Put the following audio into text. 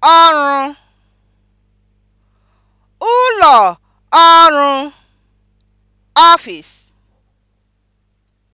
ọrụ ụlọ ọrụ (ọfịs)